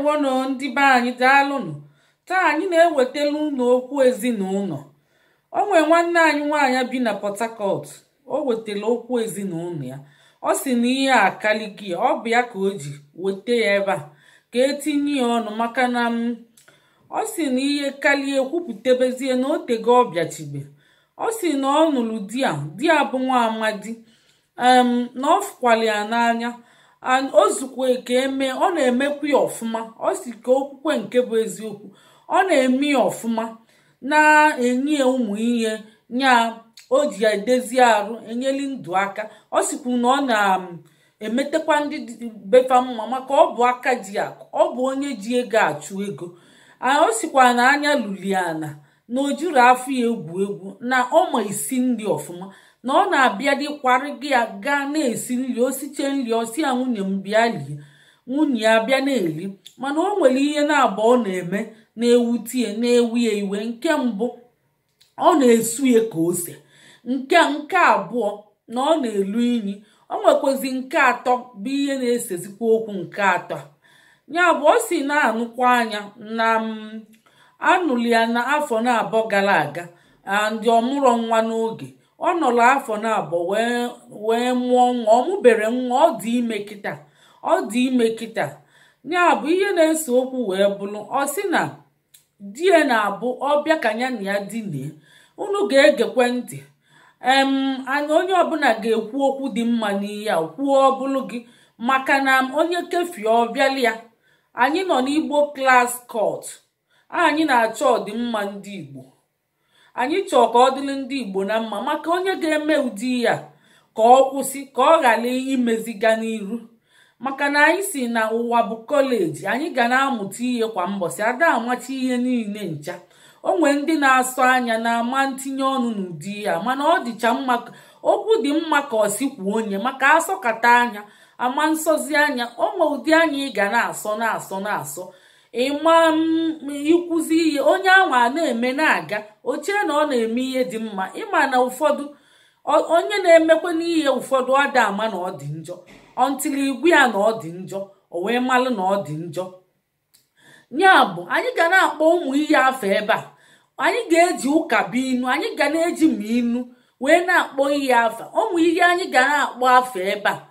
ndewonụ ndị be anyị daalụnụ taa anyị na-ewetala unu okwu ezinụlọ o nwee nwanne anyị nwaanyị bi na Port Harcourt o wetara okwu ezinụlọ ya ọ sị na ihe akaliki ya ọ bụ ya ka o ji weta ya ebe a ka etinye ya ọnụ maka na mm, ọ sị na ihe karịa kwupụtabezie na otego ọ bịachibe ọ sị na ọ nụrụ di ya di ya bụ nwa amadi na ọ fụkwara ya n'anya and o ka eme ọ na emekwa ya ọfụma ọ si ka okwukwe nke bụ eziokwu ọ na-eme ya ọfụma na-enye ụmụ ihe nya o ji edezi arụ enyeli ndụ aka ọ na ọ na-emetekwa ndị befa mma maka ọ bụ aka ji akụ ọ bụ onye ji ego achụ ego o sikwa na anya luliana na o afọ ya egwu egwu na ọma isi nri ọfụma na ọ na-abịa dịkwara gị ya gaa na-esi nri osiche nri osi ya nwunye m bịa lie nwunye ya bịa na eri mana o nwere ihe na-abụ ọ na-eme na-ewutie na-ewu ya iwe nke mbụ ọ na-esu ya ka ose nke nke abụọ na ọ na-elu inyi o nwekwazi nke atọ bụ ihe na-esezikwa okwu nke atọ ya bụ ọ si na-anụkwa anya na anụli ya na afọ na abụọ gara aga ndị ọmụrụ nwa n'oge ọ nọrọ afọ na abụọ wee mụọ nwa ọ mụbere nwa ọ dị ime kịta ọ dị ime kịta ya bụ ihe na-ese okwu wee bụrụ ọ sị na di ya na-abụ ọbịa ka ya na ya dinie unu ga-egekwe ntị em onye ọbụla ga-ekwu okwu dị mma n'ihe a kwuo ọbụlụ gị maka na onye kefie ọbịala ya anyị nọ n'igbo klas kọt anyị na-achọ ọdịmma ndị igbo anyị chọọ ka ọ dịrị ndị igbo na mma maka onye ga-eme ụdị ya ka ọ kwụsị ka ọ ghara imeziga n'iru maka na anyị si na ụwa bụ kọleji anyị ga na-amụta ihe kwa mbọsị ada amachi ihe niile ncha o nwee ndị na-asọ anya na-ama ntinye ọnụ n'ụdị ya mana ọ dịcha mma okwu dị mma ka ọ sikwuo onye maka asọkata anya ama nsọzi anya o nwee ụdị anya ị ga na-asọ na-asọ na-asọ ịma ikwuzi mm, ihe onye ahụ na-eme na-aga ochie na ọ na-eme ihe dị mma ịma na ụfọdụ onye na-emekwa n'ihe ụfọdụ ọ dị ama na ọ dị njọ ọntili igwe ya na ọ dị njọ o wee malụ na ọ dị njọ ya bụ anyị ga na-akpọ ụmụ ihe afọ ebe a anyị ga-eji inu anyị ga na-eji ma inu wee na-akpọ ihe afa ụmụ ihe anyị ga na-akpọ afọ ebe a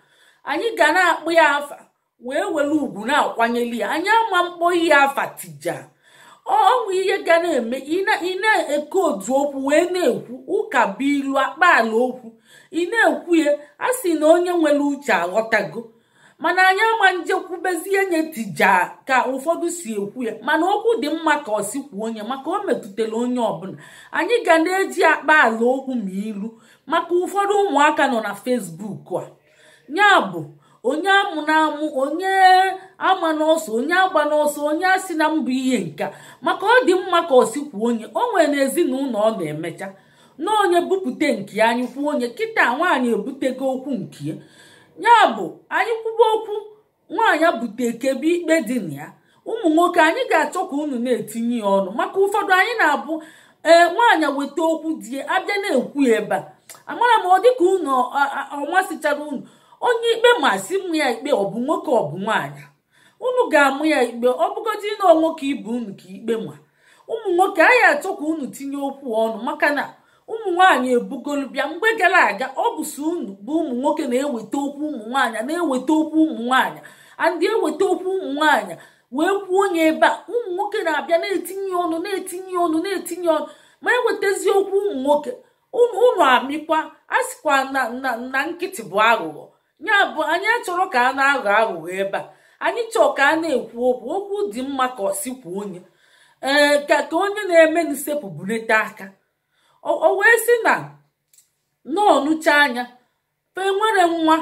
anyị ga na-akpọ ya afa wee were ugwu na-akwanyeli ya anya ama mkpọ ihe afatija ọnwụ ihe ga na-eme ị na-eke otu okwu wee na-ekwu ụka bụ ilu akpaala okwu ị na-ekwu ya a sị na onye nwere uche aghọtago mana anyị ama njekwubezie nye tija ka ụfọdụ si ekwu ya mana okwu dị mma ka ọ sikwuo onye maka o metụtara onye ọbụla anyị ga na-eji akpa ala okwu ma ilu maka ụfọdụ ụmụaka nọ na fesbuk a ya bụ onye amụ na-amụ onye ama n'ọsọ onye agba n'ọsọ onye asị na mbụ ihe nka maka ọ dị mma ka osikwu onye o nwere na ezinụlọ ọ na-emecha na onye bupute nke anyị kwuo onye kịta nwaanyị ebutego okwu nke ya bụ anyị kwuba okwu nwaanyị bute kebe ikpe dị na ya ụmụ nwoke anyị ga-achọ ka unu na-etinye ya ọnụ maka ụfọdụ anyị na-abụ ee nwaanyị weta okwu di abịa na-ekwu ebe a amara m ọ dịka unu ọmasịchara unu onye ikpe masị mụ ya ikpe ọ bụ nwoke ọ bụ nwaanyị unu ga-amụ ya ikpe ọ bụgodị na nwoke ibe unu ka ikpe ma ụmụ nwoke anyị achọ ka unu tinye okwu ọnụ maka na ụmụ nwaanyị ebugolu bịa mgbe gara aga ọ bụ so unu bụ ụmụ nwoke na-eweta okwu ụmụ nwaanyị na-eweta okwu ụmụ nwaanyị andị eweta okwu ụmụ nwaanyị wee kwuo onye ebe a ụmụ nwoke na-abịa na-etinye ọnụ na-etinye ọnụ na-etinye ọnụ ma ewetazi okwu ụmụ nwoke unu amịkwa a sịkwa na nkịtị bụ aghụghọ nya bụ anyị achọrọ ka a na-aghọ aghụghọ ebe a anyị chọọ ka a na-ekwu okwu okwu dị mma ka ọ onye ee ka ka onye na-eme n'isepụ bunete aka o wee sị na nọọnụcha anya fe nwere nwa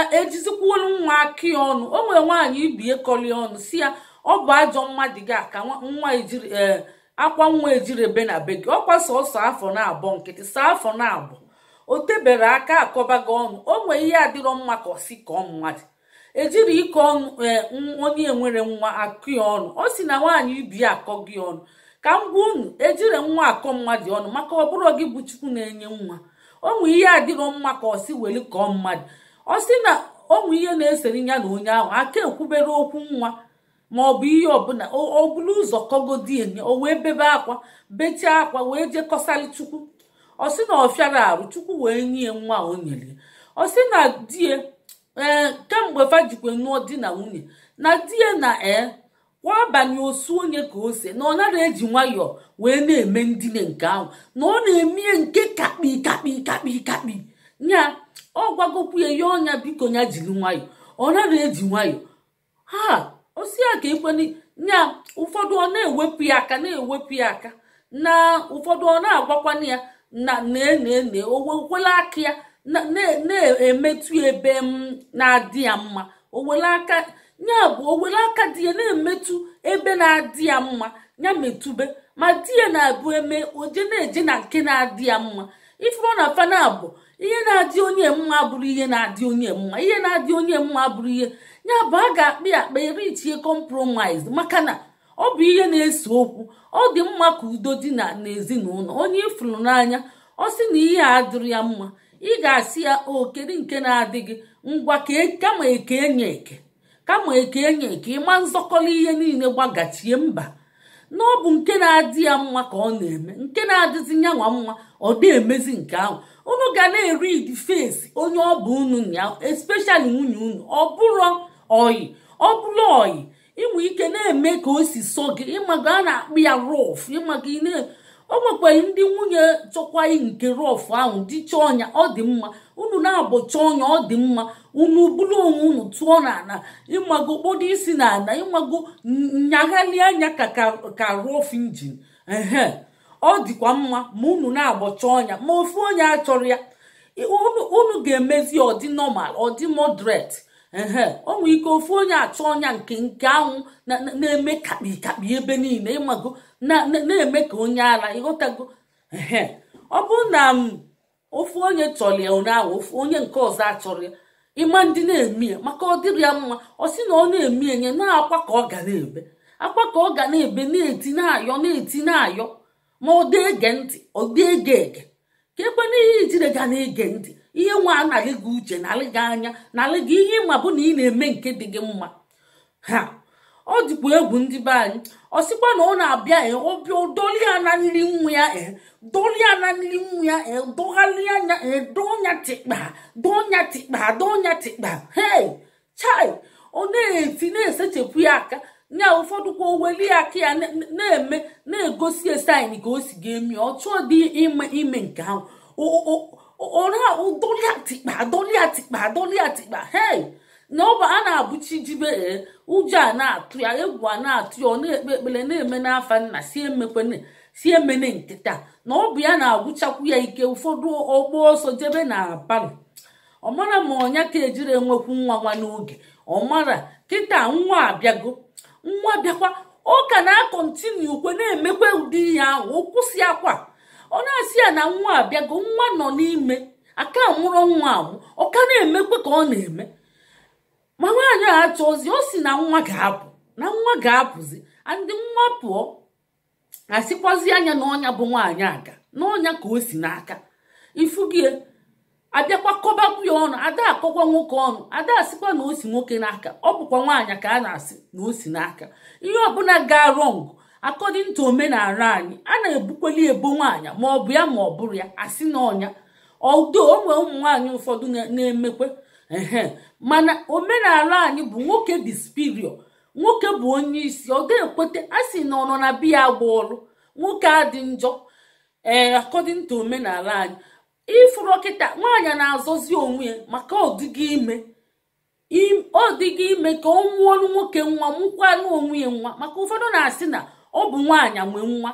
e, ejizikwulu nwa aki ọnụ o nwere nwaanyị ibie kọli ọnụ si ya ọ bụ ajọ mmadụ gị aka nwa ejiri ee akwa nwa ejiri ebe na be gị ọkwa sọsọ afọ na abụọ nkịtị saa afọ na abụọ o tebere aka akọbago ọnụ o nwee ihe adịrọ mma ka ọsi kọọ mmadụ ejiri ike ọnụ e, onye nwere nwa akụ ya ọnụ ọ si na nwaanyị ibi akọ gị ọnụ ka m gwa unu ejiri nwa akọ mmadụ ọnụ maka ọ bụrụ gị bụ chukwu na-enye nwa onwe ihe adịrọ mma ka ọsi weli kọọ mmadụ ọ sị na onwe ihe na-esere ya na onye ahụ aka ekwubere okwu nwa ma ọ bụ ihe ọbụla ọ bụrụ ụzọ kọgodi enye o wee bebe akwa bechie akwa wee jekọsali chukwu ọ sị na ọ fịara arụ chukwu wee nye nwa o nyere ọ sị na die ee kemgbe fajikwe nụọ di na nwunye na di ya na e kwa abanye osu onye ka ose na ọ nara eji nwayọọ wee na-eme ndine nke ahụ na ọ na-emie nke kakpi kakpi kakpi kakpi nya ọ gwagokwu ya ya ọnya biko ya jiri nwayọọ ọ nara eji nwayọọ ha osi ya ka ekwene nya ụfọdụ ọ na-ewepụ ya aka na-ewepụ ya aka na ụfọdụ ọ na-agwakwana ya na na-ene owele aka ya na-emetụ ebe m na-adị ya mma owele ya bụ owele aka di ya na-emetụ ebe na-adị ya mma ya metụbe ma di ya na-abụ eme oje na-eje na nke na-adị ya mma ife ọ na fana bụ ihe na-adị onye mma bụrụ ihe na-adị onye mma ihe na-adị onye mma bụrụ ihe ya bụ a ga-akpa ya akpa erichie compromise maka na ọ bụ ihe na-ese okwu ọ dị mma ka udo dị na n'ezinụlọ onye ịfụrụ n'anya ọ sị na ihe a dịrị ya mma ị ga-asị ya o kedu nke na-adịghị ngwa e, kama eke enye eke kama eke enye eke ịma nzọkọrọ ihe niile gbagachie mba na ọ bụ nke na-adị ya mma ka ọ na-eme nke na-adịzi nyanwa mma ọ dị emezi nke ahụ unu ga na-eri fesi onye ọ bụ unu ya espeshali nwunye unu ọ bụrụ oyi ọ bụrụ oyi inwe ike na-eme ka o si sọ gị ịmaga a na-akpụ ya rọf ịmaga ị o nwekwaghị ndị nwunye chọkwaghị nke rọf ahụ dịcha ọnya ọ dị mma unu na-abọcha ọnya ọ dị mma unu bụrụ onwe unu tụọ n'ala ịmago kpodo isi n'ala ịmago nyaghalị anya ka ka rọf injin ehe ọ dịkwa mma ma unu na-agbọcha ọnya ma ofu onye achọrọ ya unu ga-emezi ọdị nọmal ọdị modret ehe onwe ike ofu onye achọ ọnya nke nke anwụ na-eme kakpikakpi ebe niile ịmago na-eme ka onye ara ịghọtago ehe ọ bụrụ na ofu onye chọrọ ya ụnyaahụ ofu onye nke ọzọ achọrọ ya ịma ndị na-eme ya maka ọ dịrị ya mma ọ sị na ọ na-eme enye na-akwa ka ọ ga na-ebe akwa ka ọ ga na-ebe na-eti na-ayọ na-eti na-ayọ ma ọ dị ege ntị ọ dị ege ege ka ebe n'ihe ijire ga na-ege ntị ihe nwa anaghị gị uche nalị gị anya nalị gị ihe ịma bụ na ị na-eme nke dị gị mma ha ọ dịkwa egwu ndị be anyị ọ sịkwa na ọ na-abịa e, ọbịa doli ya nri nwa ya doli ya na nri nwa ya dogharị anya donya tịkpa donya tịkpa donya tịkpa hei chai ọ na-eti na-esechapụ ya aka nya ụfọdụ kwa oweli aka ya na-eme na-egosi esain ka o si ga emi ọ chọọ dị ime ime nke ahụ ọra doli atịkpa doli atịkpa doli atikpa hei na ọba a na-abụchi jibe ụjọ a na-atụ ya egwu a na-atụ ya ọ na-ekpe ekpere na-eme n'afa nna si emekwana si emene nkịta na ọ bụ ya na-agwụchakwu ya ike ụfọdụ ọgbọ ọsọ jebe na abalị ọ mara ma ọnya ka ejiri enwekwu nwa nwa n'oge ọ mara kịta nwa abịago nwa bịakwa ọ ka na-akọntinu ukwe na-emekwa ụdị ihe ahụ o kwụsị akwa ọ na-asị ya na nwa abịago nwa nọ n'ime aka mụrụ nwa ahụ ọ ka na-emekwe ka ọ na-eme ma nwaanyị a achọ ozi si na nwa ga-apụ na nwa ga-apụzi ndị nwa pụọ asịkwazi anya na ọnya bụ nwaanyị aga n'ọnya ka o si n'aka ifugie abịakwa kọbapụ ya ọnụ ada akọkwa nwoke ọnụ ada asịkwa na o si nwoke n'aka ọ bụkwa nwaanyị ka a na-asị na o si n'aka ihe ọbụla ga rọngụ according omenala anyị a na-ebukweli ebo nwanyị ma ọ bụ ya ma ọ bụrụ ya asị na ọnya odo onwe ụmụ nwaanyị ụfọdụ na-emekwe ehe mana omenala anyị bụ nwoke bụ spirio nwoke bụ onye isi ọ ga-ekweta a sị na ọ biya agba ọrụ nwoke adị njọ ee eh, omenala anyị ịfụrụ ọkịta nwaanyị na-azọzi onwe ya maka ọdịgị ime ọ dịghị ime ka ọ nwụọrụ nwoke nwa mụkwanụ onwe ya nwa maka ụfọdụ na-asị na ọ bụ nwaanyị anwe nwa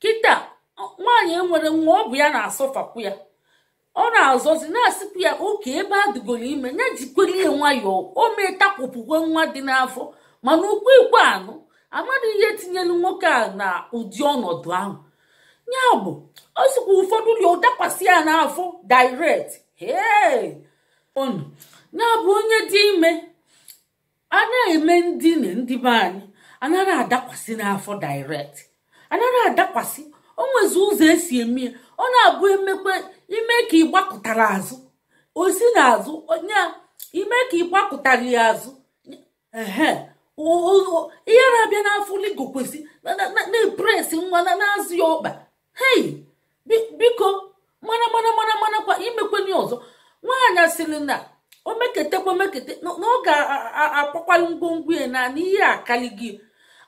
kịta nwaanyị e nwere nwa ọ bụ ya na-asọfapụ ya ọ na-azọzi na-asịpụ ya oke ebe a ime ya jikwere ya nwayọọ o mee takwụpụkwe nwa dị n'afọ mana ukwu ikpe anụ amadụ ihe tinyere nwoke a na ụdị ọnọdụ ahụ ya bụ ọ ụfọdụ ụlọ dakwasị ya n'afọ direct onu ya bụ onye dị ime a na-eme ndine ndị be anyị anaghị adakwasị n'afọ direct anaghị adakwasị o nwezi ụzọ esi eme ya ọ na-abụ emekwe ime ka ị gbakụtara azụ osi na azụ onye ime ka ị gbakụtara ya azụ ehe ihe na-abịa n'afọ ligo kwesị na-epresi nwa na-azụ ya ọkpa hei biko mana mana mana mana kwa imekwenye ọzọ nwaanyị sịrị na o meketekwa na ọ ga-akpakwalụ ngwongwo ya na ihe akali gị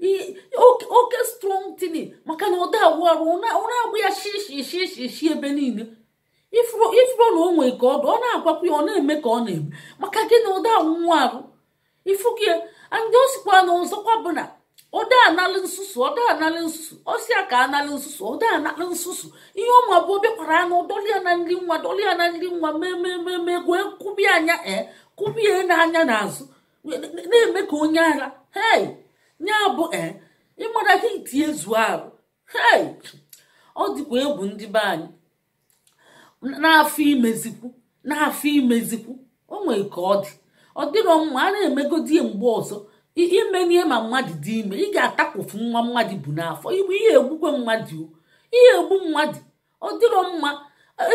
oke strong tini maka na ọ da ụra agbụ ya shishi shishi shi ebe niile ifuro na o nwee ka ọ ọ na-agwakwa ya ọ na-eme ka ọ na-eme maka gị na ụda anwụnwa arụ ifugi ndị o sikwa na ọzọkwa bụ na ọda analị nsusu ọda analị nsusu ọsịa ka analị nsusu ọda analị nsusu ihe ọma bụ obịakwara anụ dọlịa na nri nwa dọlịa na nri nwa memememe gwee kụbie anya e kụbie n'anya n'azụ na-eme ka onye ara hei bụ eh, ịmara gị tinye zuo ahụ ọ dịkwa egwu ndị be anyị n'afọ imezikwu n'afọ imezikwu o nwere ka ọ dị ọ dịrọ mma a na-emegodi mgbe ọzọ imenie ma mmadụ dị ime ị ga-atakpofu nwa mmadụ bụ n'afọ igbe ihe egbukwe mmadụ ihe egbu mmadụ ọ dịrọ mma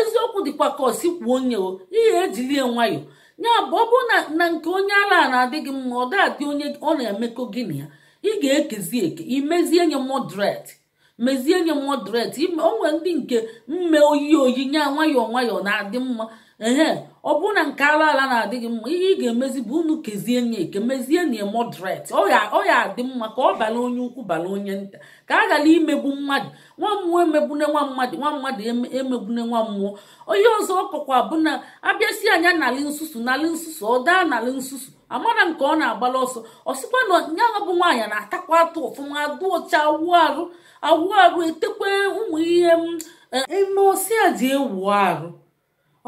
eziokwu dịkwa ka ọsi kwuo onye o ihe ejilie nwayọọ ya bụ ọ bụrụ na nke onye ala na-adịghị mma ọ ga-adị onye ọ na-emekọ gị na ya ị ga-ekezi eke imezie nye moderate mezie nye moderate onwe ndị nke mme oyi oyi nye nwayọọ nwayọọ na-adị mma ehe ọ bụrụ na nke ala ala na-adịghị mma ihe ị ga-emezi bụ unu kezie nye eke mezie nye moderate ọ ya adị mma ka ọ bala onye ukwu bala onye nta ka a ghara imegbu mmadụ nwa mmụọ emegbune nwa mmadụ nwa mmadụ emegbune nwa mmụọ onye ọzọ ọkọkwa bụ na abịasị anya nalị nsusu nalị nsusu ọ daa n'ala nsusu amara nke ọ na-agbala ọsọ ọsịkwa na ya bụ nwaanyị na-atakwa atụ ọfụma dụọcha awụ arụ awụ arụ etekwe ụmụ ihe eme a dị ewu arụ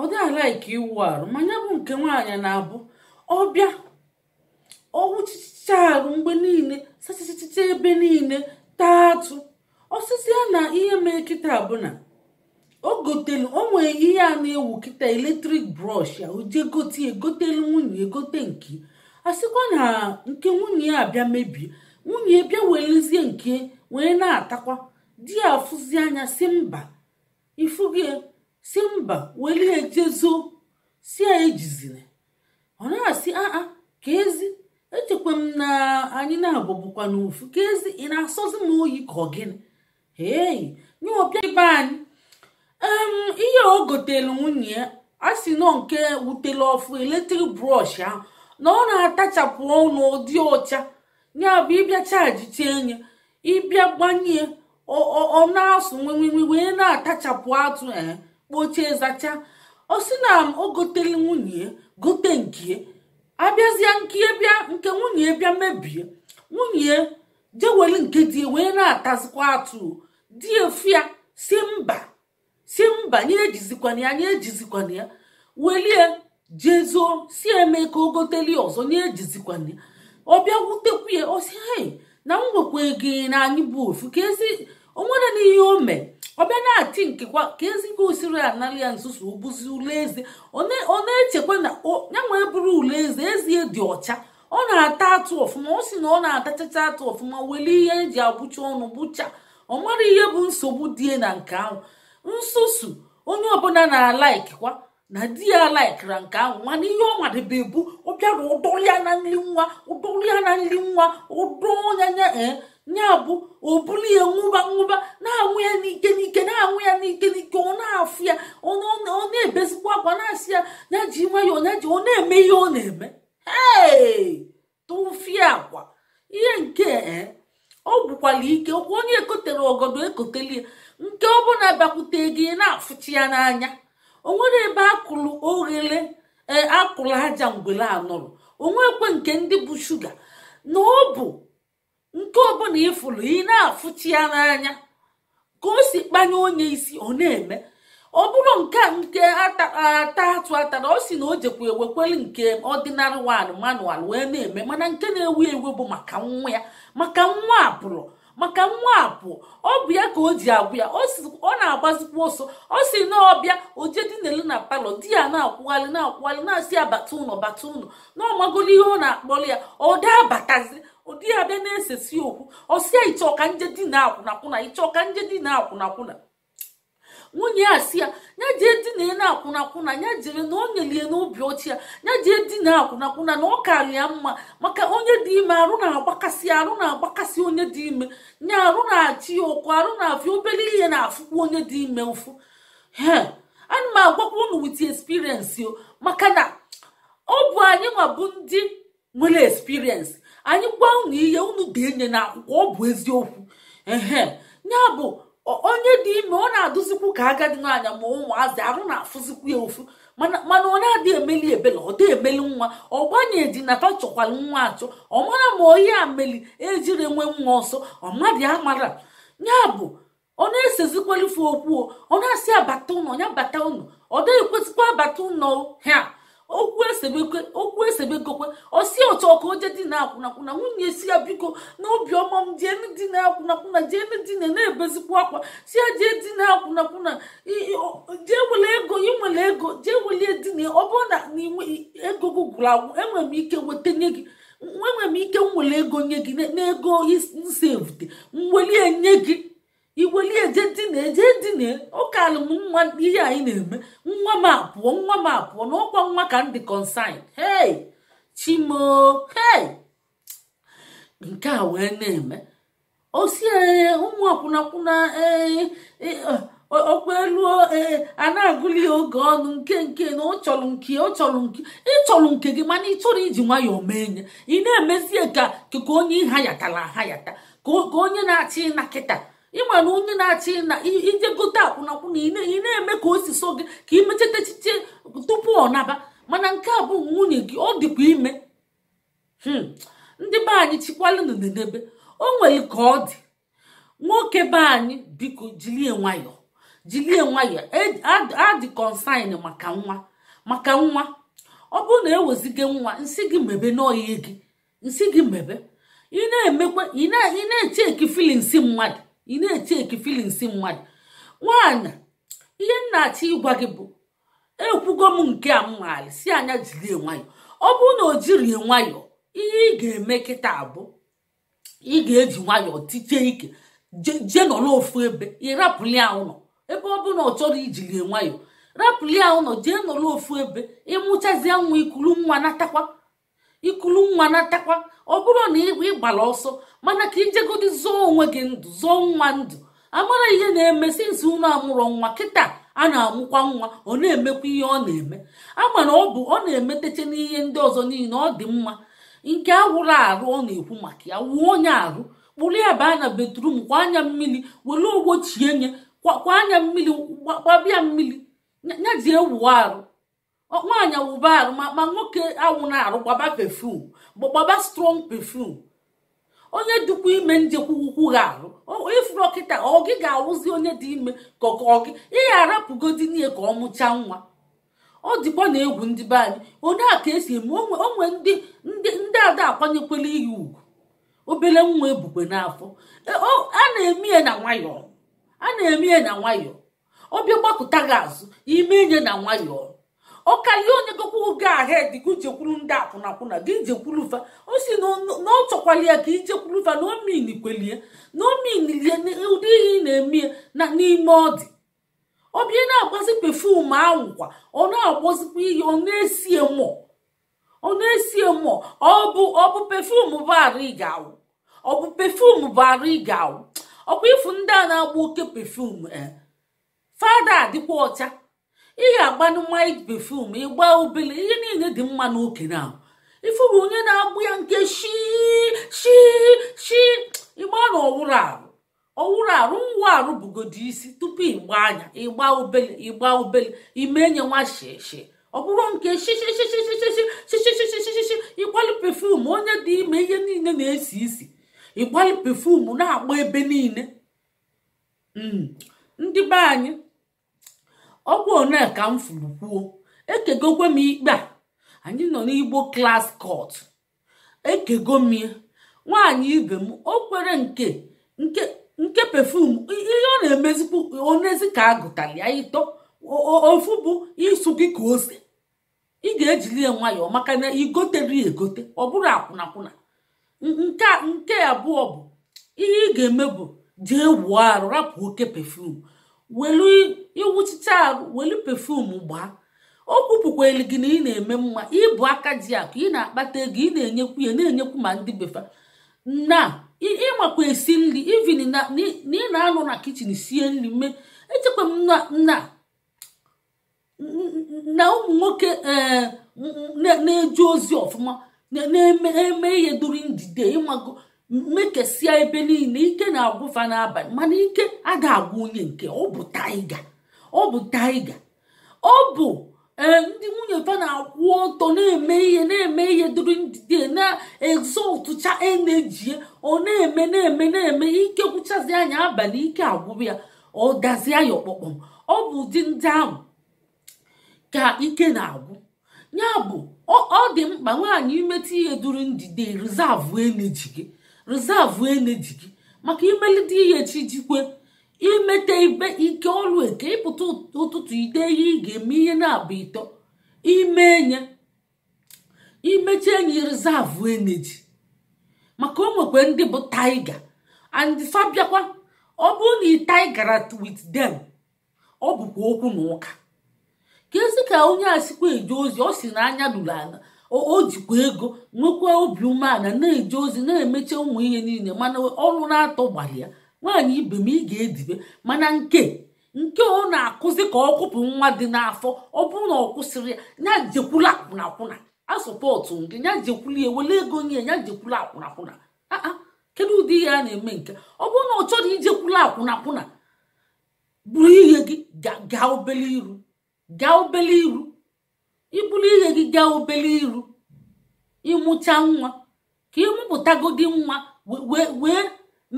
ọ dị alaiki iwu arụ ma ya bụ nke nwaanyị na-abụ ọbịa ọwụchicha arụ mgbe niile sachachacha ebe niile taa atụ ọsịsịa na ihe mee kịta abụna o gotelu ihe a na-ewu kịta eletrik brọsh ya oje gote egotelu nwunye egote nke a sịkwa na nke nwunye ya abịa mebie nwunye bịa welezie nke wee na-atakwa di ya afụzi anya si mba ifuge si mba welie jezo si ya ejizina ọ na-asị aa ka ezi echekwa m na anyị na-abụbụkwa n'ofu ka ezi ị na-asọzi m oyi ka ọ gịnị ee nye ọbịa ibe anyị ihe o gotere nwunye a si nọ nke wutere ọfụ eletrik brọsh ahụ na ọ na-atachapụ ọnụ ụdị ọcha ya bụ ịbịa chajite enye ịbịa gbanye ọ na-asụ nwenwenwe wee na-atachapụ atụ ee kpochie zacha ọ sị na o gotere nwunye gote nke abịazịa nke bịa nke nwunye bịa mebie nwunye jeweli nke wee na-atazikwa atụ di efia si mba si mba anyị ejizikwana ya anyị ejizikwana ya welie jezuo si eme ka o ọzọ nye ejizikwana ya ọ bịa wutekwu ya ọ si na m nwekwa ego na anyị bụ ofu ka ezi onwere na ihe o mee ọ bịa na-ati nkekwa ka ezigbo osiri anali ya nzuzu obuzi ule eze ọ na-echekwa na ya nwee bụrụ ule eze ezie dị ọcha ọ na-ata atụ ọfụma ọ sị na ọ na-atachacha atụ ọfụma welie ihe eji abụcha ọnụ bụcha ọ nwere ihe bụ nsogbu die na nke ahụ nsusu onye ọbụla na-alaikikwa na di ya laikira nke ahụ mana ihe ọ madebe bụ ọ bịara ụdọrọ na nri nwa ụdọrọ ya na nri nwa ụdọ ya ya e, bụ o buru ya nwụba nwụba na-anwụ ya n'ike n'ike na-anwụ ya n'ike n'ike ọ na-afụ ya ọ na-ebezikwa akwa na-asị ya ya ji nwayọọ ya ọ na-eme ihe ọ na-eme ee nwekwara ike okwu onye ekotere ogodo ekoteli nke ọbụla bịakwute gị na-afụchi ya n'anya o nwere ebe akụrụ oghere e, akụrụ aja ngwere anọrọ onwekwe nke ndị bụ shuga na ọ bụ nke ọbụla ịfụrụ ị na-afụchi ya n'anya ka o si kpanye onye isi ọ na-eme ọ bụrụ nke nke ata atụ atara ọ si na o jekwa ewekwere nke ọdịnarị wan manual wee na-eme mana nke na-ewu ewu bụ maka nwa ya maka nwa abụrụ maka nwa apụ ọ bụ ya ka o ji agwụ ya ọ na agbazikwu ọsọ ọ si na ọbịa oje dinele na palọ di ya na-akwụgharị na-akwụgharị na-asị ya bata ụlọ bata ụlọ na ihe ọ na-akpọrọ ya ọ daa batazi ụdị ya bịa na-esesi okwu ọsịa ịchọ ka nje di na akwụnakwụna ịchọ ka na akwụnakwụna nwunye ya si ya nya jee dina na akwụnakwụna ya jere na o nyelie n'obi ọchị ya ya jee dina akwụnakwụna na ọ ya mma maka onye dị ime arụ na-agbakasị arụ na-agbakasị onye dị ime nya arụ na-achị ya ụkwụ arụ na-afịa obere ihe na-afụkwa onye dị ime ụfụ he ana m agwakwa unu wit experience o maka na ọ bụ anyị ma ndị nwere experience anyị gwa unu ihe unu ga-enye na akwụkwọ ọ bụ eziokwu ehe ya bụ onye dị ime ọ na-adụzikwu ka agadi n'anya ma ụmụazị arụ na-afụzikwu ya ofu mana ọ na-adị emeli ebele ọ dị emeli nwa ọ gbanyeji nata chọkwara nwa achọ ọ mara ma onye ameli meli ejiri enwe nwa ọsọ ọmadị amara ya bụ ọ na-esezikwalife okwu ọ na-asị abata ụnọ ya bata ụnọ ọ dịghị kwesịkwa abata ụnọ ha okwu esebekwe okwu esebekokwe osi otu ọka oje dị na-akwụnakwụna nwunye si ya biko na obiọma m jee dị na-akwụnakwụna jee dị na na-ebezikwa akwa si ya jee dị na-akwụnakwụna jee wele ego inwere ego jee welie dị na ọ bụrụ na ego gị gwụrụ agwụ enwere m ike weta nye gị enwere m ike nwere ego nye gị n'ego ego nsevute m welie nye gị iwelie eje ejedina ụka m nwa ihe anyị na-eme nwa m apụọ nwa m apụọ na ọkwa nwa ka m dị hei chimo hei nke a wee na-eme osi ụmụ akwụnakwụna e, okpeluo e, a na-agụli oge ọnụ nke nke na ọ chọrọ nke ọ chọrọ nke ịchọrọ nke gị mana ị chọrọ iji nwayọọ mee nye ị na-emezie ka ka onye ha yatara ha yata ka onye na-achị ịna kịta ị na onye na-achị na ije gote akwụnakwụna ị na-eme ka o si so gị ka imechata echiche tupu ọ naba mana nke a bụ nwunye gị ọ dịkwa ime hmm. ndị be anyị chikwalụ n'ebe o nwere ka ọ dị nwoke be anyị biko jilie nwayọ jilie nwayọ e, adị maka nwa maka nwa ọ bụrụ na eweziga nwa nsị gị mebe n'ọhịa gị nsị gị mebe ị na-emekwa ị na-eche eki filin si mmadụ ị na-eteki filings mmadụ nwaanyị ihe nna-achọ ịgwa gị bụ ekwugo m nke a mmaali si anya jiri nwayọ ọ bụrụ na o jirie nwayọọ ihe ị ga-eme kịta bụ ị ga-eji nwayọ tiche ike jee nọrọ ofu ebe ị rapụli ụlọ ebe ọ na ọ chọrọ ijiri nwayọ rapụli ụlọ jee nọrọ ofu ebe ịmụchazie nwa ikulu nwa natakwa ikulu nwa natakwa ọ bụrụ na ị gbara ọsọ mana ka ijegodi zụọ onwe gị ndụ zụọ nwa ndụ amara ihe na-eme sinsi unu amụrụ nwa kịta a na-amụkwa nwa ọ na-emekwa ihe ọ na-eme ama na ọ bụ ọ na-emeteche n'ihe ndị ọzọ niile ọ dị mma nke awụrụ arụ ọ na-ekwu maka ya wuo onye arụ kpụrụ ya baa na betrum kwa anya mmiri were ogbochie nye kwa anya mmiri gbabịa mmiri ya ji arụ nwaanyị wụba arụ ma nwoke awụ na arụ gbaba pefum gbaba strọng pefum onye dịkwa ime ndị kwukwugha arụ ịfụ ọkịta ọ gị ga-awụzi onye dị ime ka ọ gị ịgha arapụgodi nie ka ọ mụchaa nwa ọ dịkwa na egwu ndị be anyị onye a ka esi eme onwe ndị ndị ada akwanyekwela ihe ugwu obere nwa ebukwe n'afọ e, a na-eme ya na nwayọọ a na-eme ya na nwayọọ ọbịa gbapụta gị azụ ime enye na nwayọọ ọkalie onye gokwa oge ahed gị jekwuru ndị akwụnakwụna gị jekwuruva o si na ọ chọkwalia ka ijekwuruva na omin kwelie na omin lie ụdị ihe ị na-eme na n'ime ọ dị ọbịa na-agbazi pefum ahụkwa ọ na-agbazikwa ihe ọ na-esie mụọ ọ na-esie mụọ ọ bụ ọ bụ pefum bụ arụ ị ga-awụ ọ bụ pefum bụ arụ ị ga-awụ ọ bụ ifu ndị a na-agba oke pefum eh, fada adịkwa ọcha ị ga-agbanụ mmanya pefum ịgba obele ihe niile dị mma n'okere ahụ ifuru onye na-agbụ ya nke shi shi shi ịgba n'ọwụrụ arụ ọwụrụ arụ nwa arụ bugodi isi tupu ịgba anya ịgba obele ịgba obele ime enye nwa shishi ọ bụrụ nke anyị ọgwụ one ka m furu kwuo ekegokwe m ikpe a anyị nọ n'igbo klas kọt ekego m nwaanyị ibe m o kwere nke nke pefum ihe ọ na-emezikwu onezi ka a ya ịtọ ofu bụ ịsụ gị ka ose ị ga-ejili ya nwayọọ maka na igotere egote ọ bụrụ akwụnakwụna nke abụọ bụ ihe ị ga-eme bụ jee wuo arụ rapụ oke pefum welu iwuchicha arụ welu pefum gbaa o kwupụkwelu gị na ị na-eme mma ịbụ aka ji akụ ị na-akpata ego ị na-enyekwu ya na-enyekwu ma ndị befa na ịmakwa esi nri ivin na ị na-anọ na kichin sie nri mee echekwa m na na ụmụ nwoke eh, na-eju ozi ọfụma na-eme ihe during ịmago mmekesia ebe niile ike na-agwụfa n'abalị mana ike aga agwụ onye nke ọ bụ ọ bụ taiga ọ bụ e, ndị nwunye fa na-akwụ ọtọ na-eme ihe na-eme ihe duru ndidi na-ezọtụcha eneji ọ na-eme na-eme na-eme ike gwụchazi anya abalị ike agwụ ya ọ dazie ya ọkpọkpọm ọ bụ ụdị ndị ahụ ka ike na-agwụ ya bụ ọ dị mkpa nwaanyị imeta ihe duru ndidi rizavụ eneji gị rizavụ eneji gị maka imelite ihe echi jikwe imete ibe ike ọrụ eke ịpụta ụtụtụ ide ihe ị ga-eme ihe na-abụ ịtọ ime enye imechi enyi rizavụ eneji maka o nwekwa ndị bụ taiga and fabiakwa ọ bụrụ na ị taigara with them ọ bụkwa okwu na ụka ka ezi ka onye a sikwa eje ozi ọ si na anya o jikwa ego nwekwa obi umeala na-eje ozi na-emecha ụmụ ihe niile mana ọrụ na-atọ gbalị ya nwaanyị ibe m ị ga-edibe mana nke nke ọ na-akụzi ka ọ kụpụ nwa dị n'afọ ọ bụrụ na ọ kwụsịrị ya ya jekwula akwụnakwụna a sọpọtụ gị ya jekwula ewele ego nye ya jekwula akwụnakwụna kedu ụdị ihe a na-eme nke ọ bụrụ na ọ chọrọ ijekwula akwụna akwụna bụrụ ihe gị gaa obele iru gaa obele iru ibulu ihe gị gaa obere iru ịmụcha nwa ka ịmụpụtagodi nwa wee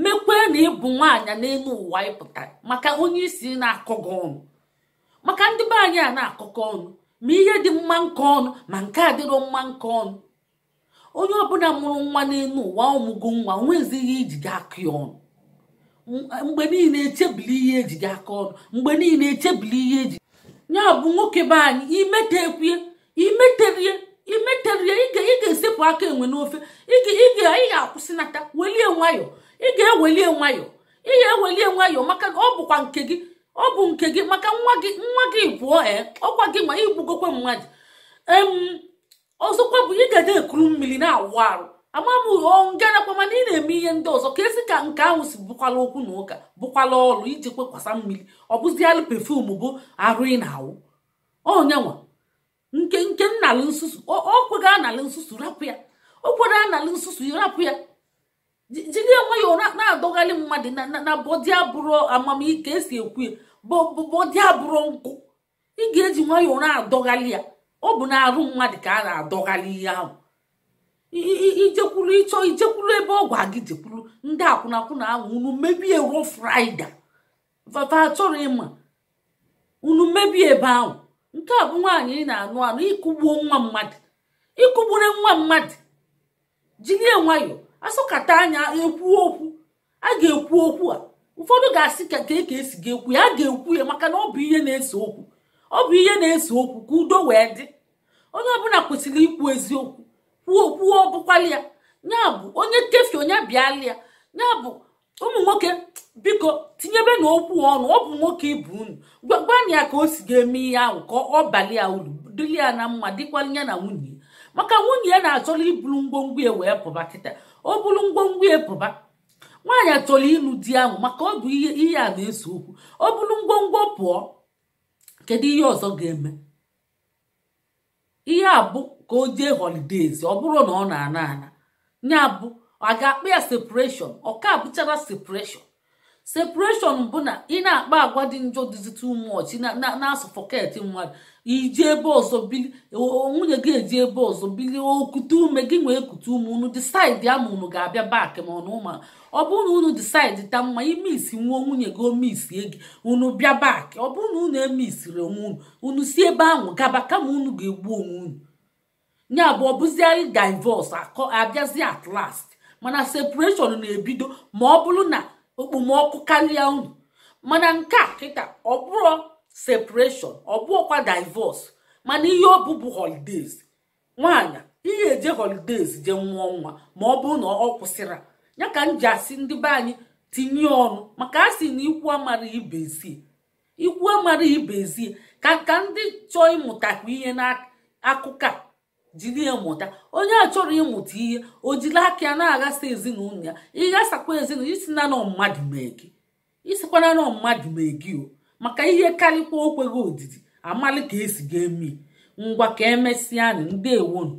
mekwee na ịbụ nwaanyị n'elu ụwa ịpụtara maka onye isi na-akọgọ ọnụ maka ndị be anyị a na-akọkọ ọnụ ma ihe dị mma nke ọnụ ma nke a dịrọ mma nke ọnụ onye ọbụla mụrụ nwa n'elu ụwa ọmụgo nwa onwezighị iji e gị aka e ọnụ mgbe niile echebili ihe eji gị aka ọnụ mgbe niile echebili ihe eji ya bụ nwoke be anyị imeterie imeterie imeterie ị ga-esepụ aka enwe n'ofe ị ga-akwụsịnata welie nwayọ ị ga-ewelie nwayọ ị ga-ewelie nwayọ maka ọ bụkwa nke gị ọ bụ nke gị maka nwa gị nwa gị pụọ ee eh, ọkwa gị ma igbugokwe mmadụ ọzọkwa bụ ị ga na-ekuru mmiri na-awụ arụ amabụghị ngalakwa mana ị na-eme ihe ndị ọzọ ka esi ka nke ahụ si bụkwala okwu na ụka bụkwala ọrụ iji kwekwasa mmiri ọ bụziala pefum bụ arụ ị na-awụ onyenwa nke nke nnalụ nsusu o kwega analị nsusu rapụ ya o kwere nsusu rapụ ya jiri enweghị ụra na-adọgharị mmadụ na bọdi abụrụ amamike esi ekwu ya bọdi abụrụ nkụ ị ga-eji nwayọọ na-adọgharị ya ọ bụ na arụ mmadụ ka a na-adọgharị ihe ahụ ijekwuru ịchọ ijekwuru ebe ọgwụ a gị jekwuru ndị akwụnakwụna ahụ unu mebie ruo fraịde vava chọrọ ịma unu mebie ebe ahụ nke a bụ nwaanyị ị na-anụ anụ ịkụgbuo nwa mmadụ ịkụgbure nwa mmadụ jirie nwayọ asọkata anya ekwu okwu a ga-ekwu okwu a ụfọdụ ga-asị ka e ka esi ga-ekwu ya a ga-ekwu ya maka na ọ bụ ihe na-ese okwu ọ bụ ihe na-ese okwu ka udo wee dị onye ọbụla kwesịrị ikwu eziokwu kwuo kwuo ọbụkwala ya bụ onye kefi onye bịala ya ya bụ ụmụ nwoke biko tinyebe na okwu ọnụ ọ bụ nwoke ibu unu gwagwana ya ka o si ga-eme ihe ahụ ka ọ bali ya uru ya na mma dịkwa ya na nwunye maka nwunye ya na-achọrọ iburu ngwongwo ya wee pụba kịta o buru ngwongwo ya pụba nwaanyị achọrọ ịlụ di ahụ maka ọ bụ ihe a na-ese okwu ọ bụrụ ngwongwo pụọ kedu ihe ọzọ ga-eme ihe a ka o jee holidays ọ bụrụ na ọ na-ana ana ya bụ a ga-akpa ya separation ọ ka bụchara separation separation bụ na ị na-akpa agwa dị njọ dịzi too much na-asụ fọket mmadụ iji ebe ọzọ bili nwunye gị eji ebe ọzọ bili okute ume gị nwee ekute ume unu disaidi ama unu ga-abịa bak ma ọnụ ụma ọ bụrụ na unu disaidi ta mma imisi nwụọ nwunye gị omisie gị unu bịa bak ọ bụrụ na unu emisiri onwe unu unu si ebe ahụ gaba kama unu ga-egbu onwe unu ya bụ ọ anyị divọs abịazi at last mana separeshọn na-ebido ma ọ bụrụ na okpomọkụ karịa unu mana nke a kịta ọ bụrụ separeshọn ọ bụọkwa divọs mana ihe ọ bụbu holidays nwaanyị ihe eje holidays je nwụọ nwa ma ọ bụrụ na ọ kwụsịra ya ka m ji asị ndị be anyị tinye ọnụ maka a sị na ikwu amara ibezi ikwu amara ibezie ka ka ndị chọọ ịmụtakwa ihe n'akụkụ a jiri ya mụta onye a chọrọ ịmụta ihe o jiri aka ya na-aghasa ezinụlọ ya ịghasakwa ezinụlọ isi na mmadụ mee gị nọ mmadụ maka ihe karịkwa okweghị odidi amali ka esi ga-eme ngwa ka emesịa nụ ndewonu